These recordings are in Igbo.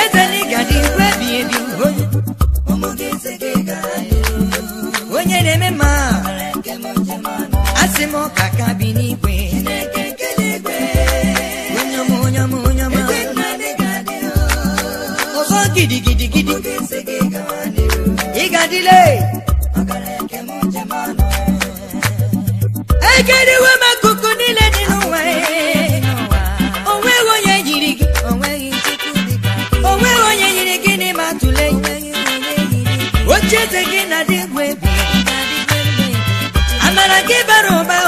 ezenigadi ebi onye na-eme mma asị m ọka bi n'igwe ọzọ gidigidigidi ịgadile ekedewe m chete gị na dị egwu egwu amara gị bara ụba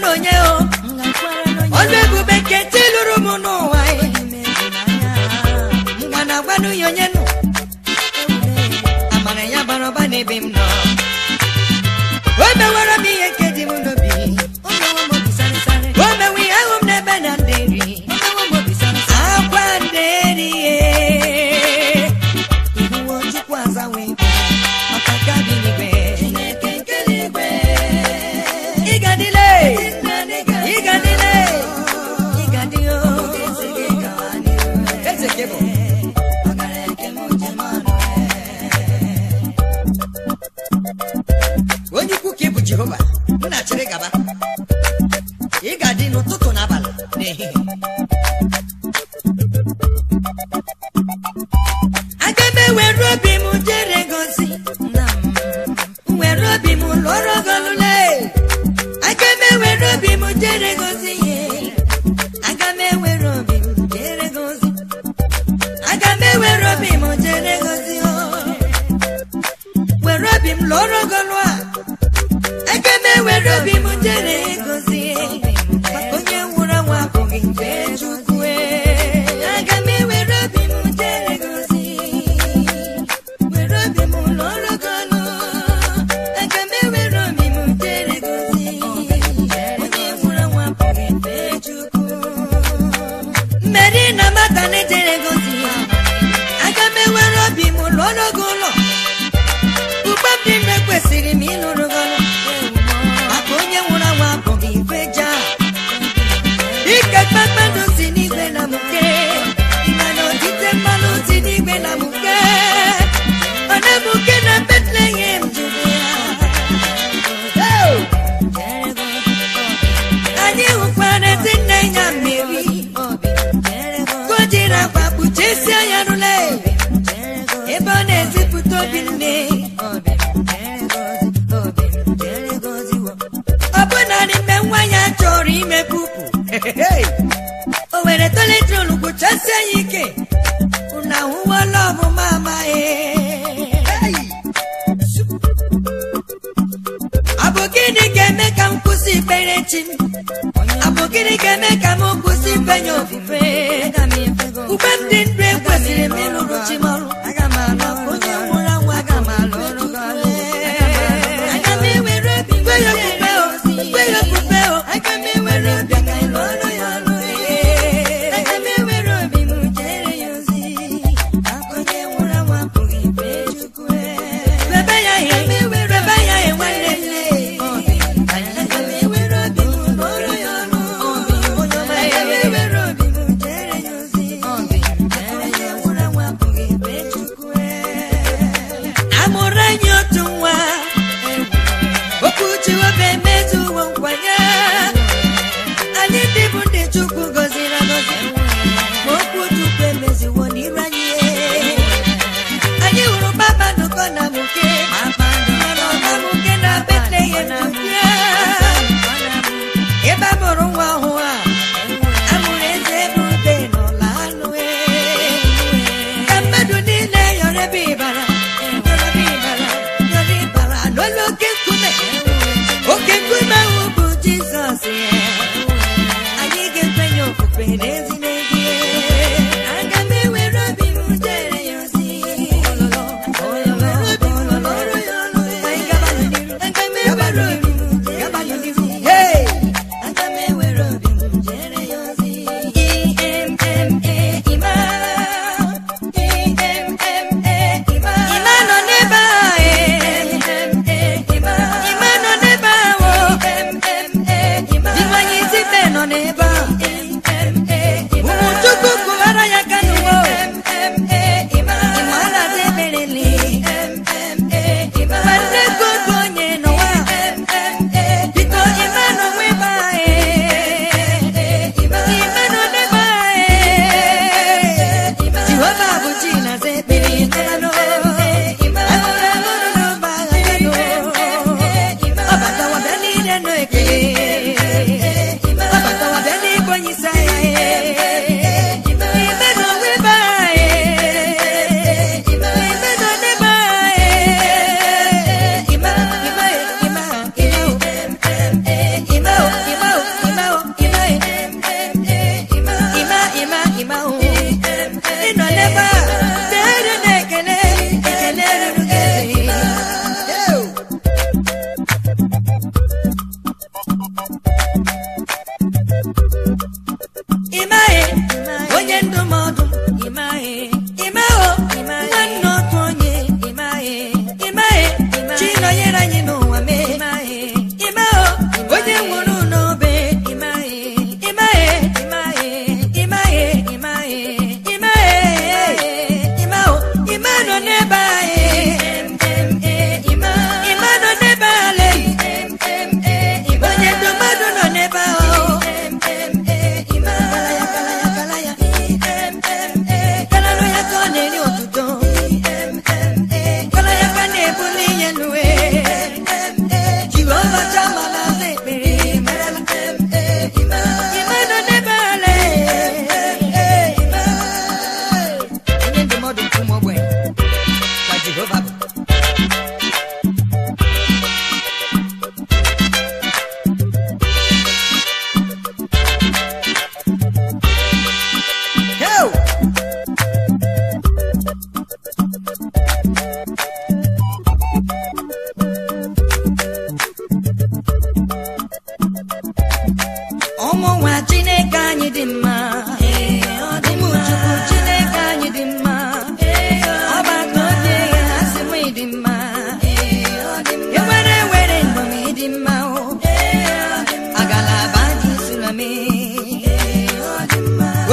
na onye ebube nke lụrụ m n'ụwa lụọrọgolule aga m ewere obi aga obi m jere gozi obi m dị na mata na-ejere gozi ya aga m enwere obi m lụọ n'oge ụlọ ugbe mmiri kwesịrị m ịlụrụ o were toletron gbochasie ya ike na ahụwala ọmụma amaghị eh. abụ gịnị ga-eme ka m kwụsị ikpere chi m abụ gịnị ga-eme ka m kwụsị ikpenye obi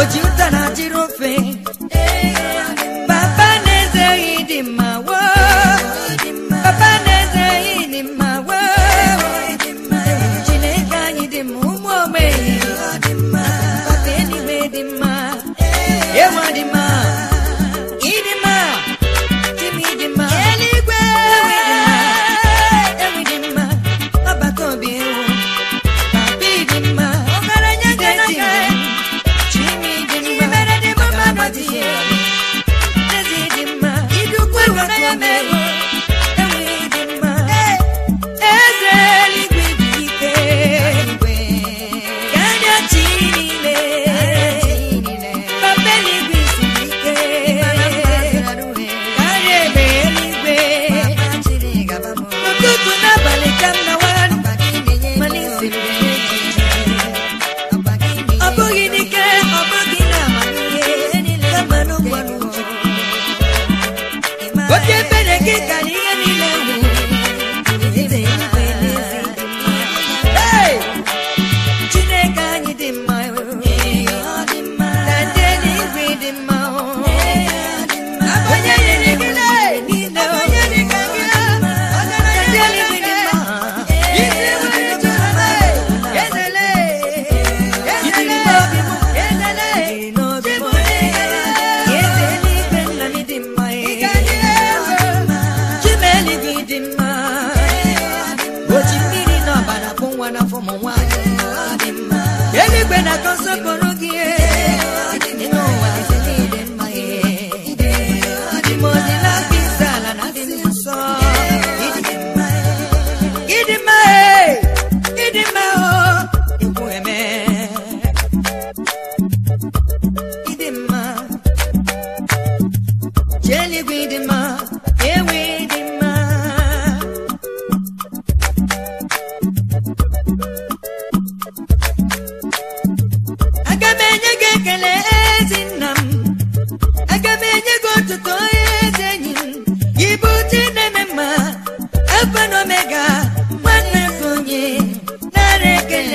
oji. ji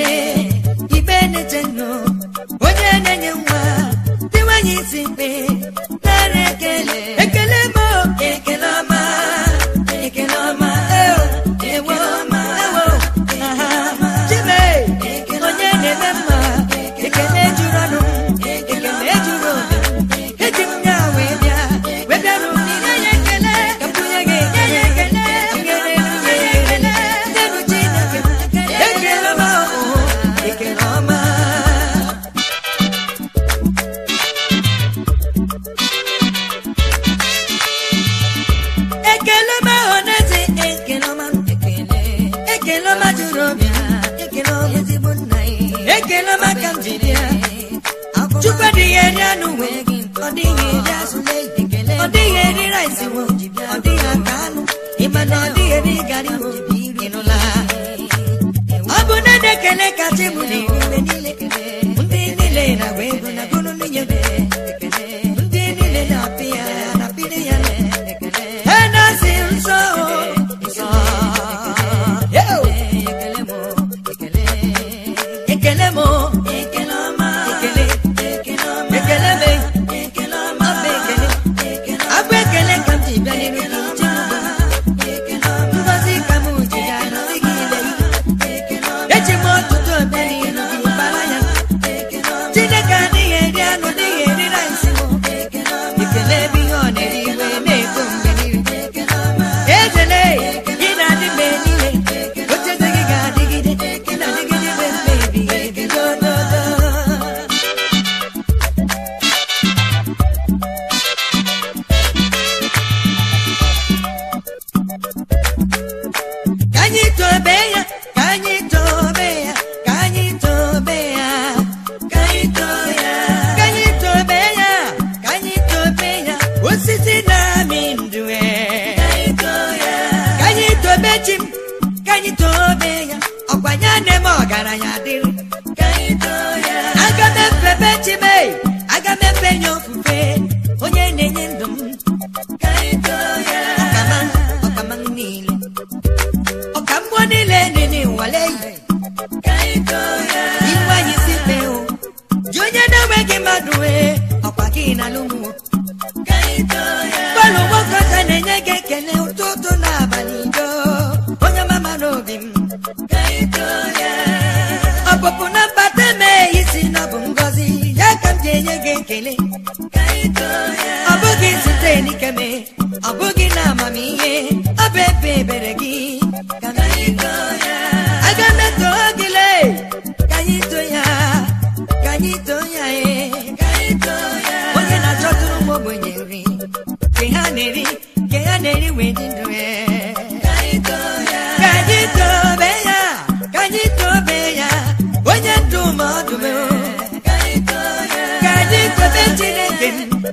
quiere. ekele ọma juru obi ekele ọma ka m ji bịa chukwu adịghị eri anụ nwe ọ dịghị eri azụ ọ dịghị eri rice wo ọ dịghị aka anụ ịma na ọ dịghị eri gari wo ịnụla ọ bụ na ekele kacha bụ tenemos gị mmadụ ee ọkwa gị na lụmụ palụ nwoke ọcha na-enye gị ekele ụtụtụ na abalị do onye mama n'obi m ọpụpụ na mbata mee isi na ọ bụ ngọzi ya ka m ji enye gị ekele ọ bụghị site n'ikeme ọ bụghị na amamihe ọ bụ ebe ebere gị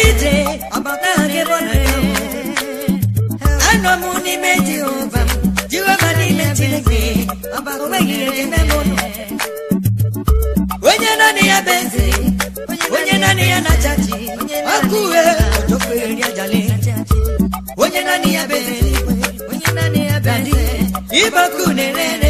aka ije ọbata onye naanị ya bụ eze onye naanị ya na ọkụ onye naanị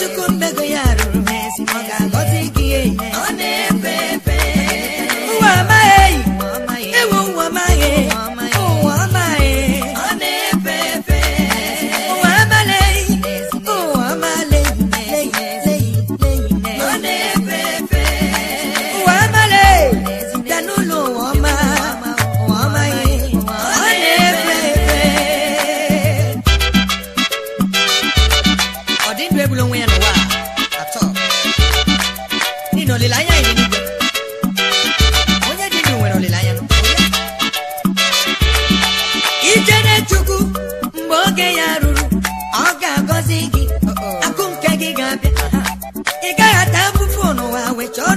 Chukwu mmego ya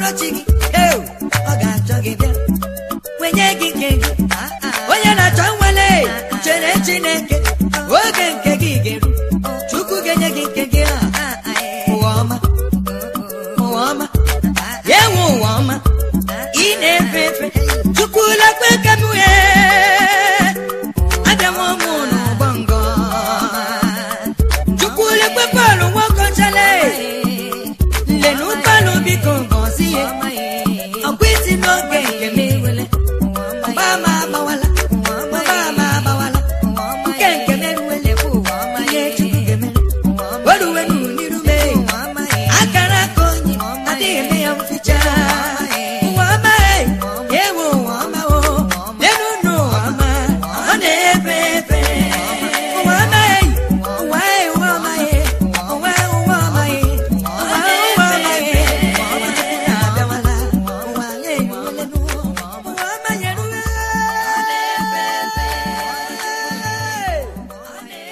n'ọchị gị ọ ga-achọ gị bịa nwenye gị nke gị ah, ah. onye na-achọ nwere chere Chineke